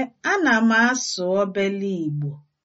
Ee, ana m asụ obele Igbo